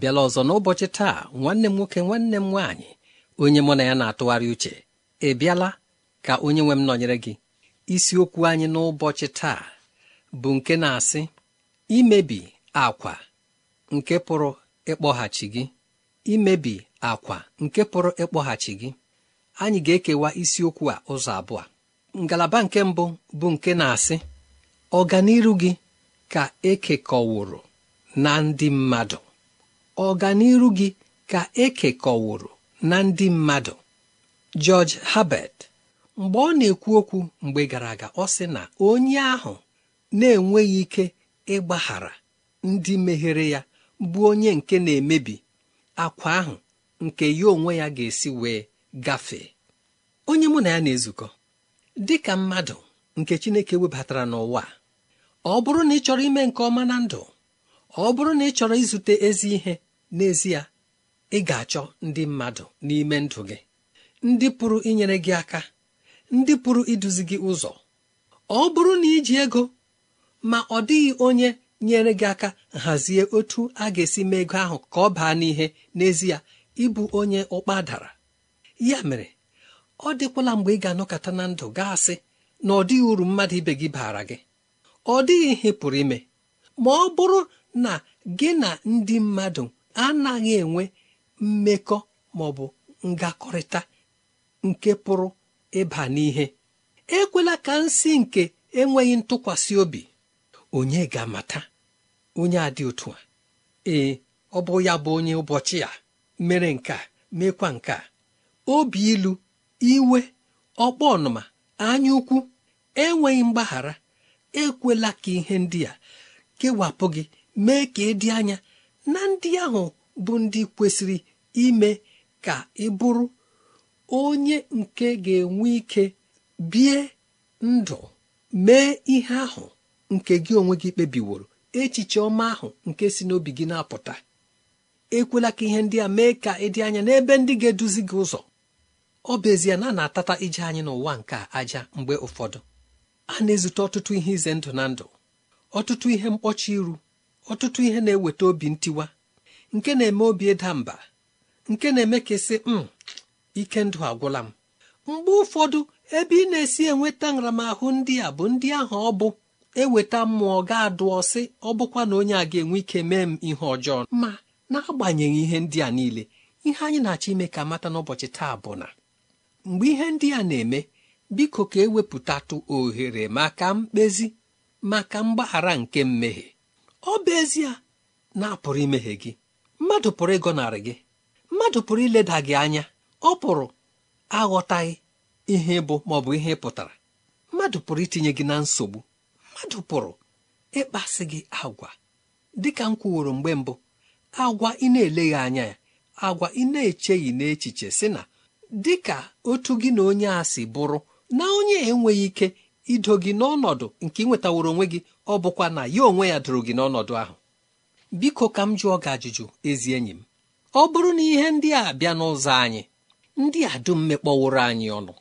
abịala ọzọ n'ụbọchị taa nwanne m nwoke nwanne m nwaanyị onye mụ na ya na-atụgharị uche ị bịala ka onye nwe m nọnyere gị isiokwu anyị n'ụbọchị taa bụ nke na-asị imebi akwa nke pụrụ ịkpọghachi gị imebi nke pụrụ ịkpọghachi gị anyị ga-ekewa isiokwu a ụzọ abụọ ngalaba nke mbụ bụ nke na-asị ọganiru gị ka ekekọwụrụ na ndị mmadụ ọganiru gị ka e ekekọwụrụ na ndị mmadụ George Herbert mgbe ọ na-ekwu okwu mgbe gara aga ọ sị na onye ahụ na-enweghị ike ịgbaghara ndị meghere ya bụ onye nke na-emebi akwa ahụ nke ya onwe ya ga-esi wee gafee onye mụ na ya na-ezukọ dị ka mmadụ nke Chineke webatara n'ụwa ọ bụrụ na ị chọrọ ime nke ọma na ndụ ọ bụrụ na ị chọrọ izute ezi ihe n'ezie ị ga-achọ ndị mmadụ n'ime ndụ gị ndị pụrụ inyere gị aka ndị pụrụ iduzi gị ụzọ ọ bụrụ na iji ego ma ọ dịghị onye nyere gị aka hazie otu a ga-esi mee ego ahụ ka ọ baa n'ihe n'ezie ịbụ onye ụkpa dara ya mere ọ dịkwala mgbe ị ga-anọkọta na ndụ gaasị asị na ọ dịghị uru mmadụ ibe gị baara gị ọ dịghị ihe pụrụ ime ma ọ bụrụ na gị na ndị mmadụ anaghị enwe mmekọ ma ọ bụ ngakọrịta nke pụrụ ịba n'ihe ekwela ka nsị nke enweghị ntụkwasị obi onye ga-amata onye a dị otu a ee ọ bụ ya bụ onye ụbọchị a mere nke a mekwa nke a obi ilu iwe ọkpọ ọnụma anya ukwu enweghị mgbaghara ekwela ka ihe ndị a kewapụ gị mee ka dị anya na ndị ahụ bụ ndị kwesịrị ime ka ị bụrụ onye nke ga-enwe ike bie ndụ mee ihe ahụ nke gị onwe gị kpebiworo echiche ọma ahụ nke si n'obi gị na-apụta ekwela ka ihe ndị a mee ka ịdị anya n'ebe ndị ga-eduzi gị ụzọ ọ bụ ezie na a na-atata ije anyị n'ụwa nke aja mgbe ụfọdụ a na-ezute ọtụtụ ihe ize ndụ na ndụ ọtụtụ ihe mkpọchi iru ọtụtụ ihe na-eweta obi ntiwa nke na-eme obi ịda mba nke na-eme ka esi m hmm, ike ndụ agwụla m mgbe ụfọdụ ebe ị na-esi enweta nramahụ ndị a bụ ndị ahụ ọ bụ eweta mmụọ ga-adụ ọsị ọ bụkwa na onye a ga-enwe ike mee m ihe ọjọọ ma n'agbanyeghị ihe ndị a niile ihe anyị na-achọ ime ka mata n'ụbọchị taa bụ na mgbe ihe ndị a na-eme biko ka ewepụtatụ ohere maka mkpezi maka mgbaghara nke mmehie ọ bụ ezie na apụrụ imehie gị mmadụ pụrụ ịgọnarị gị mmadụ pụrụ ileda gị anya ọ pụrụ aghọtaghị ihe bụ ma ọ bụ ihe pụtara mmadụ pụrụ itinye gị na nsogbu mmadụ pụrụ ịkpasị gị agwa dịka m kwuworo mgbe mbụ agwa ị na-eleghị anya ya agwa ị na-echeghị n'echiche sị na dịka otu gị na onye a si bụrụ na onye enweghị ike ido gị n'ọnọdụ nke ị nwetaworo onwe gị ọ bụkwa na ya onwe ya dụrụ gị n'ọnọdụ ahụ biko ka m jụọ gị ajụjụ ezi enyi m ọ bụrụ na ihe ndị a bịa n'ụzọ anyị ndị a dum mekpọworo anyị ọnụ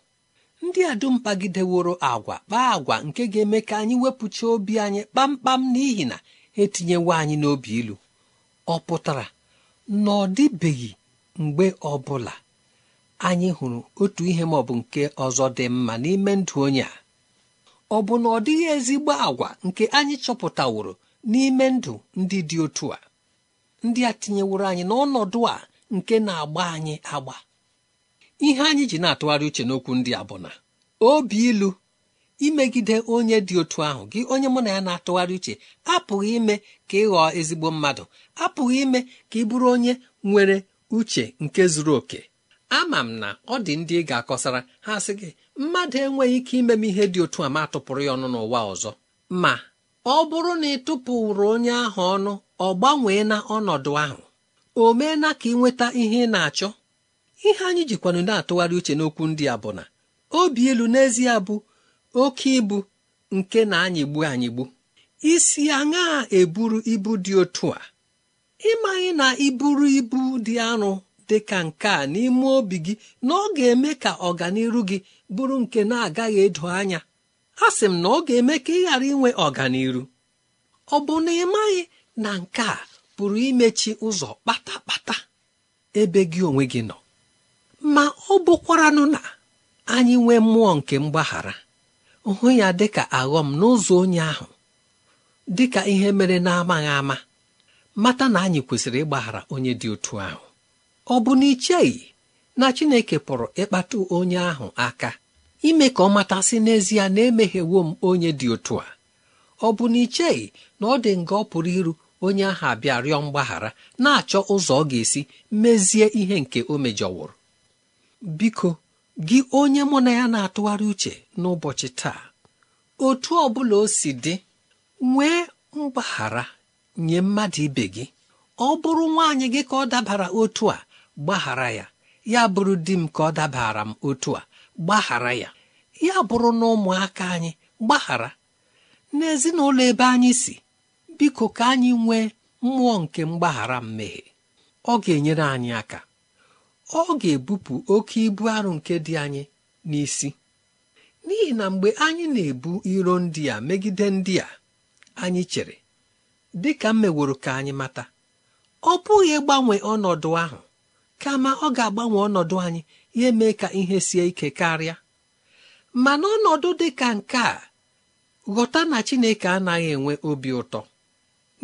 ndị a dum pagideworo agwa kpaa agwa nke ga-eme ka anyị wepụcha obi anyị kpamkpam n'ihi na etinyewo anyị n'obi ilu ọ pụtara na ọ dịbeghị mgbe ọ bụla anyị hụrụ otu ihe maọbụ nke ọzọ dị mma n'ime ndụ onye a ọ bụ na ọ dịghị ezigbo agwa nke anyị chọpụtaworo n'ime ndụ ndị dị otu a ndị a tinyeworo anyị n'ọnọdụ a nke na-agba anyị agba ihe anyị ji na-atụgharị uche n'okwu ndị a bụ na obi ilu imegide onye dị otu ahụ gị onye mụ na ya na-atụgharị uche apụghị ime ka ị ghọọ ezigbo mmadụ apụghị ime ka ị bụrụ onye nwere uche nke zuru oke ama m na ọ dị ndị ị ga-akọsara ha sị gị mmadụ enweghị ike ime m ihe dị otu a ma tụpụrụ ya ọnụ n'ụwa ọzọ ma ọ bụrụ na ị tụpụrụ onye ahụ ọnụ ọ gbanwee na ọnọdụ ahụ o meela ka ị nweta ihe ị na-achọ ihe anyị jikwanụ na-atụgharị uche n'okwu ndị a bụ na obi elu n'ezie bụ oke ibu nke na anyịgbu anyịgbu. Isi gbu isi eburu ibu dị otu a ịmaghị na iburu ibu dị arụ dịka ka nke a n'ime obi gị na ọ ga-eme ka ọganiru gị bụrụ nke na-agaghị edo anya a sị m na ọ ga-eme ka ị ghara inwe ọganiru ọ bụ na ị maghị na nke a pụrụ imechi ụzọ kpata-kpata ebe gị onwe gị nọ ma ọ bụkwaranụ na anyị nwee mmụọ nke mgbaghara hụ ya dịka aghọm n'ụzọ onye ahụ dịka ihe mere na-amaghị ama mata na anyị kwesịrị ịgbaghara onye dị otu ahụ ọ bụ na icheghị na chineke pụrụ ịkpata onye ahụ aka ime ka ọ matasị n'ezie na emeghewo m onye dị otu a ọ bụ na icheghị na ọ dị nga ọ pụrụ iru onye ahụ abịa rịọ mgbaghara na-achọ ụzọ ọ ga-esi mezie ihe nke o mejọwụrụ biko gị onye mụ na ya na-atụgharị uche n'ụbọchị taa otu ọ bụla o si dị nwee mgbaghara nye mmadụ ibe gị ọ bụrụ nwaanyị gị ka ọ dabara otu a gbaghara ya ya bụrụ di m ka ọ dabara m otu a gbaghara ya ya bụrụ na ụmụaka anyị gbaghara n'ezinụlọ ebe anyị si biko ka anyị nwee mmụọ nke mgbaghara mmehie ọ ga-enyere anyị aka ọ ga-ebupụ oke ibu arụ nke dị anyị n'isi n'ihi na mgbe anyị na-ebu iro ndị a megide ndị a anyị chere dị ka m meworo ka anyị mata ọ bụghị ịgbanwe ọnọdụ ahụ kama ọ ga-agbanwe ọnọdụ anyị ya mee ka ihe sie ike karịa ma n'ọnọdụ dị ka nke a ghọta na chineke anaghị enwe obi ụtọ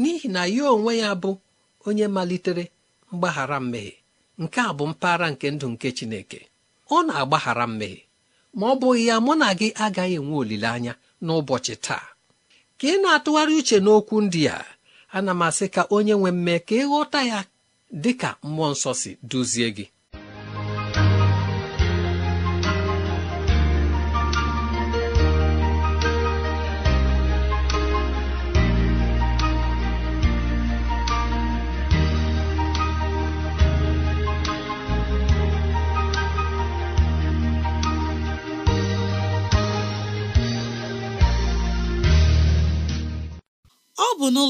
n'ihi na ya onwe ya bụ onye malitere mgbaghara mmehie nke a bụ mpaghara nke ndụ nke chineke ọ na-agbaghara mmehie ma ọ bụghị ya mụ na gị agaghị enwe olileanya n'ụbọchị taa ka ị na-atụgharị uche n'okwu ndị a ana m asị ka onye nwe mme ka ịghọta ya dị ka mmụọ nsọ si duzie gị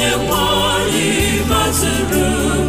onye nwanyị anyị maziri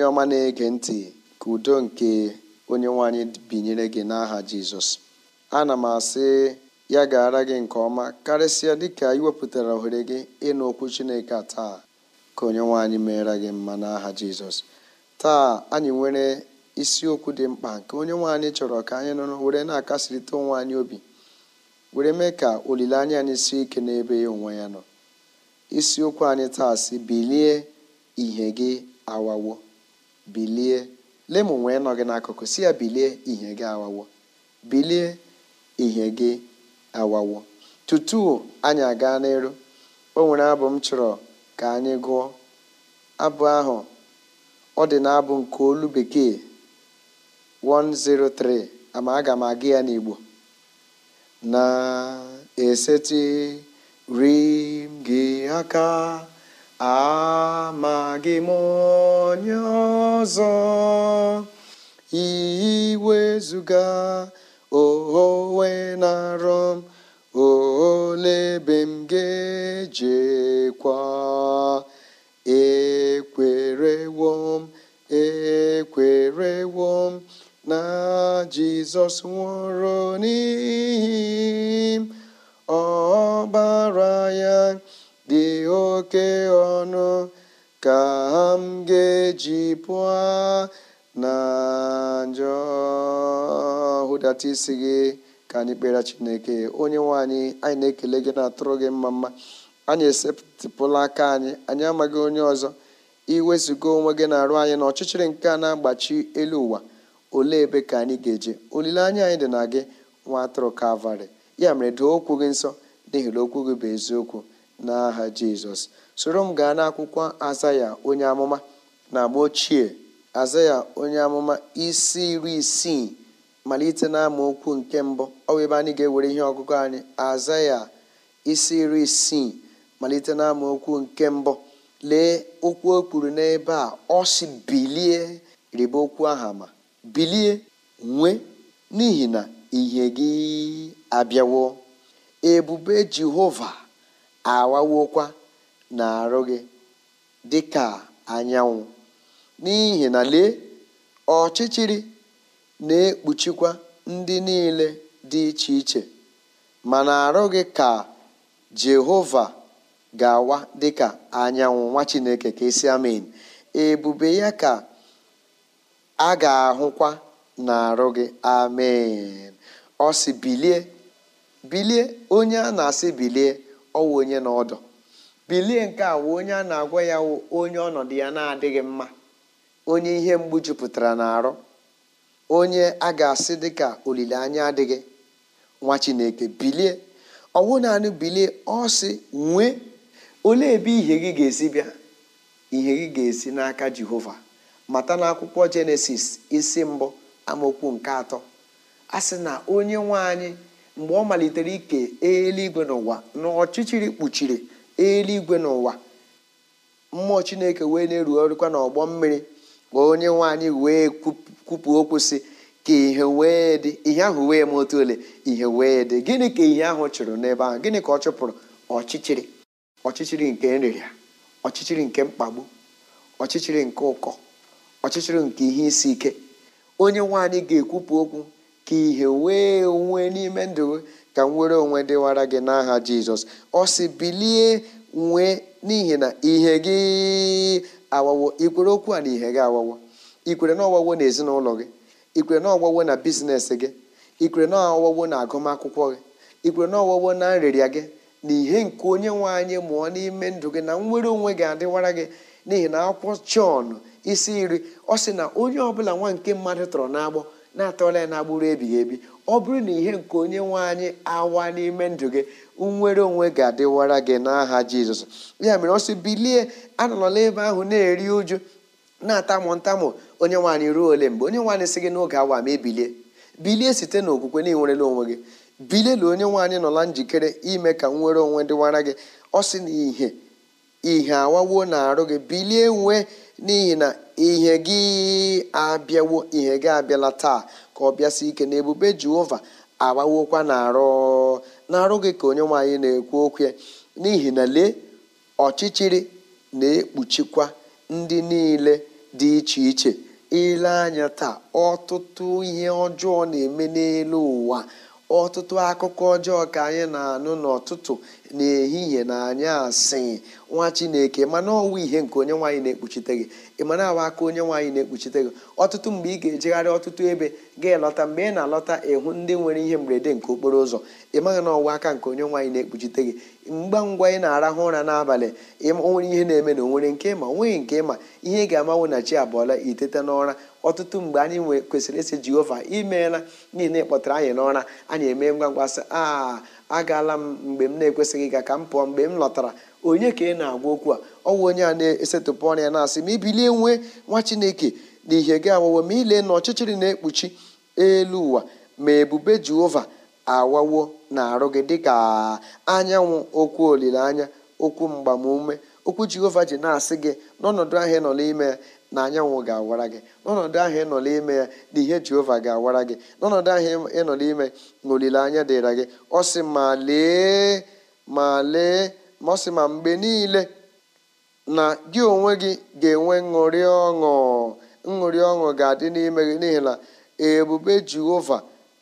onye ọma na-ege ntị ka udo nke onye nwanyị binyere gị n'aha jizọs ana m asị ya ara gị nke ọma karịsịa dịka iwepụtara ohere gị ịnụ okwu chineke taa ka onye nwanyị meere gị mma n'aha jizọs taa anyị nwere isiokwu dị mkpa nke onye nwanyị chọrọ ka anyị nụrụ were na-akasịrịta onwe anyị obi were mee ka olileanya anyị sie ike n'ebe ya onwe ya nọ isiokwu anyị taa si bilie ihe gị awawo bilie lemụ wee nọ gị n'akụkụ si ya bilie ihe gị awawo bilie ihe gị awawo tutu anyị aga n'elu o nwere abụ m chọrọ ka anyị gụọ abụ ahụ ọ dị na abụ nke olu bekee 103 ama aga m aga ya n'igbo na-esetiri aka amaghị m onye ọzọ iwezuga onwe na m lebe m ga-ejekwa ekwerewo ekwerewom ekwerewo na jizọs nwụrụ n'ihi m ọbara ya dị oke ọnụ ka m ga-eji pụọ na njọ hụdata isi gị ka anyị kpere chineke onye nwe anyị anyị na-ekele gị na-atụrụ gị mma mma anyị esepụla aka anyị anyị amaghị onye ọzọ iwezụga onwe gị na-arụ anyị na ọchịchịrị nke a na-agbachi elu ụwa olee ebe ka anyị ga-eje olileanya anyị dị na gị nwa atụrụ kalvarị ya mere doo okwu gị nsọ n'ihi na okwu gị bụ eziokwu n'aha jizọs soro m gaa n'akwụkwọ azaya onye amụma na agba ochie azaya onye amụma isi iri isii malite na okwu nke mbụ ọ bụ ebe anyị ga-ewere ihe ọgụgụ anyị azaya isi iri isii malite na okwu nke mbụ lee okwu o kwuru n'ebe a ọ si bilie rịba okwu aha ma bilie nwee n'ihi na ihe gị abịawo ebube jehova awawokwa arụ gị dị ka anyanwụ n'ihi na lee ọchịchịrị na-ekpuchikwa ndị niile dị iche iche ma na-arụ gị ka jehova ga-awa dịka anyanwụ nwa chineke ka esi amen ebube ya ka a ga-ahụkwa na-arụ gị amen ọ bilie onye a na-asị bilie ọwụ onye na ọdọ bilie nke a wụ onye a na-agwa ya wụ onye ọnọdụ ya na-adịghị mma onye ihe mgbu jupụtara n'arụ onye a ga-asị dịka olileanya adịghị nwa chineke bilie ọwụ naanị bilie ọ sị nwee olee ebe ihe gị ga-esi bịa ihe gị ga-esi n'aka jehova mata n'akwụkwọ jenesis isi mbụ amaokwu nke atọ a sị na onye nwe anyị mgbe ọ malitere ike eluigwe n'ụwa na ọchịchịrị kpuchiri eluigwe n'ụwa mmụọ chineke wee na-erugharịkwa n'ọgbọ mmiri ka onye nwanyị wee kwupụ okwu si ka ihe wee dị ihe ahụ wee ma otu ole ihe wee dị gịnị ka ihe ahụ chụrụ n'ebe ahụ gịnị ka ọ chụpụrụ ọchịchịrị ọchịchịrị nke nrịrịa ọchịchịrị nke mkpagbu ọchịchịrị nke ụkọ ọchịchịrị nke ihe isi ike onye nwanyị ga-ekwupụ okwu ka ihe wee onwe n'ime ndụ ka nwere onwe dịwara gị n'aha jizọs ọ sị bilie nwee n'ihi na ihe gị awawo ikwere okwu a na ihe gị awawo ikwere na ọwawo na ezinụlọ gị ikwere na ọwawo na bizinesi gị ikwere na ọwawo na agụmakwụkwọ gị ikwere na ọwawo na nrịrịa gị na ihe nke onye nwe anyị mụọ n'ime ndụ gị na nwere onwe gị adịwara gị n'ihi na akwụkwọ chọn isi iri ọ sị na onye ọbụla nwa nke mmadụ tọrọ n'agbọ na-atọla ya na gburu ebighị ebi ọ bụrụ na ihe nke onye nwe anyị awa n'ime ndụ gị nwere onwe ga-adịwara gị n'aha jizọs ya mere ọ sị bilie anọla ebe ahụ na-eri uju na-atamụ ntamụ onye nwaanyị ruo ole mgbe onye nwaanyị sị gị n'oge awa ma ebilie bilie site n'okwukwe na ịnwerela onwe gị bilielu onye nwaanyị nọla njikere ime ka nwere onwe dịwara gị ọ sị na ihe ihe awawo na arụ gị bilie nwee n'ihi na ihe gị abịawo ihe gị abịala taa ka ọ bịasị ike na ebube jehova agbawokwa na-arụ na ka onye nwaanyị na-ekwu okwu n'ihi na lee ọchịchịrị na-ekpuchikwa ndị niile dị iche iche ile anya taa ọtụtụ ihe ọjọọ na-eme n'elu ụwa ọtụtụ akụkọ ọjọọ ka anyị na-anụ n'ọtụtụ n'ehihie na anyị asị nwa chineke mana ọwụwa ihe nke onye nwaanyị na-ekpuchite gị ị awa aka onye nwaanyị na-ekpuchite gị ọtụtụ mgbe ị ga-ejegharị ọtụtụ ebe ga-elọta mgbe ị na-alọta ịhụ ndị nwere ihe mberede nke okporo ụzọ ị maghị na ọwa aka nke onye nwaanyị na-ekpuchite gị mgba ngwa ị na-arahụ ụra n'abalị onwere ihe na-eme na onwere nke ma onweghị nke ma ihe ị ga-amanwụ na chi abụọla iteta n'ụra ọtụtụ mgbe anyị kwesịrị ịsị jehova imeela n'ihi na kpọtara anyị n'ụra anyị eme ngwa ngwa sị a agaala m mgbe m na-ekwesịghị ịga ka m pụọ mgbe m lọtara onye ka ị na-agwa okwu a ọwụ onye a na-esetụpụ na-asị ma ibilie nwee nwa chineke na ihe gị awawo ma ile na ọchịchịrị na-ekpuchi elu ụwa ma ebube jehova awawo na arụ gị dịka anyanwụ okwu olileanya okwu mgbamume okwu jehova ji na-asị gị n'ọnọdụ ahịa ị nọ n'ime ya na anyanwụ ga-awara gị n'ọnọdụ ahụ ị n'ime ya na ihe jehova ga-awara gị n'ọnọdụ ahụ ị n'ime na olileanya dịra gị ọ sị ma lee ma lee ma ọ sị ma mgbe niile na gị onwe gị ga-enwe ṅụrị ọṅụ ṅụrị ọṅụ ga-adị n'ime gị n'ihi na ebube jehova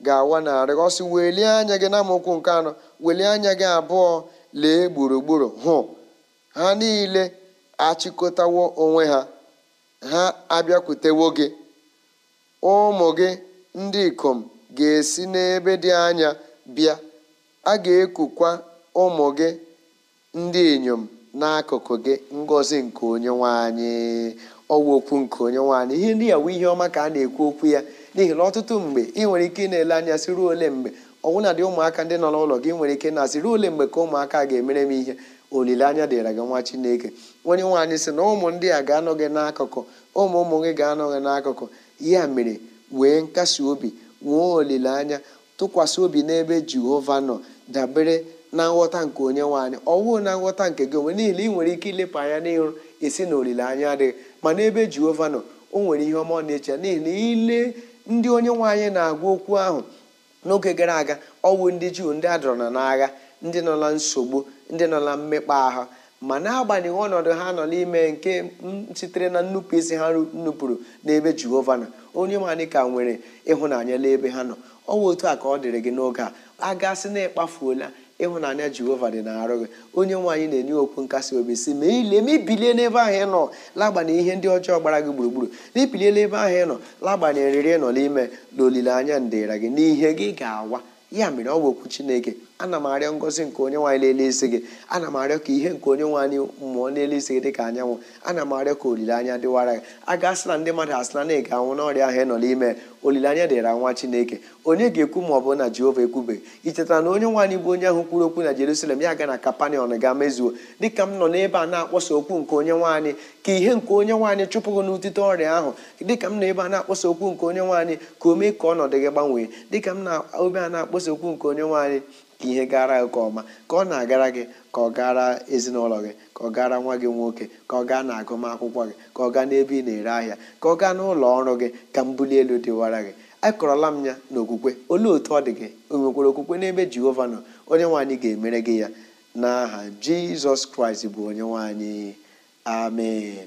ga-awa narị ọsị welie anya gị na nke anọ welie anya gị abụọ lee gburugburu hụ ha niile achịkọtawo onwe ha ha abịakwutewo gị ụmụ gị ndị ikom ga-esi n'ebe dị anya bịa a ga-ekukwa ụmụ gị ndị inyom n'akụkụ gị ngọzi nke onye anyị ọwa okwu nke onye anyị ihe ndị ya wụ ihe ọma ka a na-ekwu okwu ya n'ihi na ọtụtụ mgbe ị nwere ike ị na-ele anya sị ruo ole mgbe ọnwụna dị ụmụaka ndị nọ n'ụlọ gị nwere ike na-asị ruo ole mgbe ka ụmụaka ga-emere m ihe olileanya dịra gị nwa chineke onye nwaanyị sị na ụmụ ndị a ga anọghị n'akụkụ ụmụ ụmụ gị ga anọghị n'akụkụ ya mere wee nkasi obi nwee olileanya tụkwasị obi n'ebe jehova nọ dabere na nghọta nke onye nwaanyị ọwụụ na nghọta nke gị onwe niile ị nwere ike ilepụ anya n'ịrụ esi na olileanya adịghị ma n'ebe jehova nọ o nwere ihe ọma ọ na-eche n'ihi na ile ndị onye nwaanyị na-agwa okwu ahụ n'oge gara aga ọwụ ndị juu ndị adọrọ na n'agha ndị nọ na nsogbu ndị nọ na mmekpa ahụ ma na-agbanyeghị ọnọdụ ha nọ n'ime nke sitere na nnupụ isi ha nnupụrụ n'ebe jehova nọ onye manị ka nwere ịhụnanya n'ebe ha nọ ọ bụ otu a ka ọ dịrị gị n'oge a a gasị na ịkpafuola ịhụnanya jehova dị na-arụ gị onye nwaanyị na-enye okwu nkasi obi si ma ile ma ibilie n'ebe ahụ ị nọ lagbanye ihe ndị ọjọọ gbara gị gburugburu na ibilie n'ebe ahụ ị nọ lagbanye riri nọ n'ime na olileanya ndịra gị n'ihe gị ga-awa ya mere ọ bụ okwu chineke ana m arịọ ngozi nke onye nwaanyị n'elu isi gị ana m arịọ ka ihe nke onye nwaanyị mmụọ n'elu isi gị dị ka anyanwụ ana m arịọ ka olileanya dịwara gị a asị na ndị mmadụ asị na na ị ga-anwụ n'ọrịa ahụ ị nọ n'ime olileanya dịra nwa chineke onye ga-ekwu ma ọ bụ na jehova ekwubeghị i chetara na onye nwaanyị bụ onye ahụ kwuru okwu na jerusalem ya ga na kapanion ga mezuo dịka m nọ n'ebe a na-akpọsa okwu nke onye nwaanyị ka ihe nke onye nwaanyị chụpụghị n'utite ọrịa ahụ dịka m nọ ebe a na-akpọsa okwu nke onye nwaanyị ka o mee ka ọnọdụ gị gbanwee dịka m na obe a na-akpọsa okwu nke onye nwaanyị ka ihe gara gị nke ọma ka ọ na-agara gị ka ọ gara ezinụlọ gị ka ọ gara nwa gị nwoke ka ọ gaa na agụmakwụkwọ gị ka ọ gaa n'ebe ị na-ere ahịa ka ọ gaa n'ụlọ ọrụ gị ka mbuli elu dịwara gị akọrọla m ya n'okwukwe olee otu ọ dị gị onwekwara okwukwe n'ebe jehova nọ onye nwaanyị ga-emere gị ya n'aha jizọs kraịst bụ onye nwaanyị amen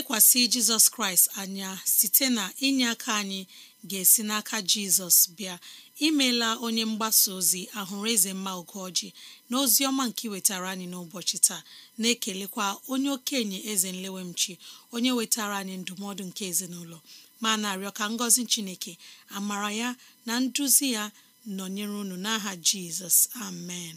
lekwasị jizọs kraịst anya site na inye aka anyị ga-esi n'aka jizọs bịa imela onye mgbasa ozi ahụrụ eze mma ogoji na ozi ọma nke wetara anyị n'ụbọchị taa na-ekelekwa onye okenye eze nlewemchi onye wetara anyị ndụmọdụ nke ezinụlọ ma na-arịọ ka ngọzi chineke amara ya na nduzi ya nọnyere unu n'aha jizọs amen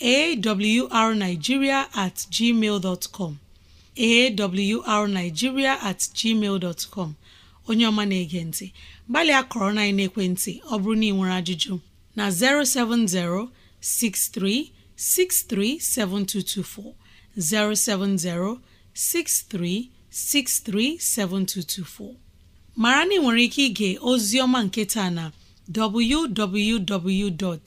arnigiria at gmail com at gmail com onye ọma na-ege ntị gbalịa kọrọ na ekwentị ọ bụrụ na ị nwere ajụjụ na 070 7224. 070-6363-7224 mara na ị nwere ike ịga ozi ọma nketa na www.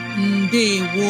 ndewo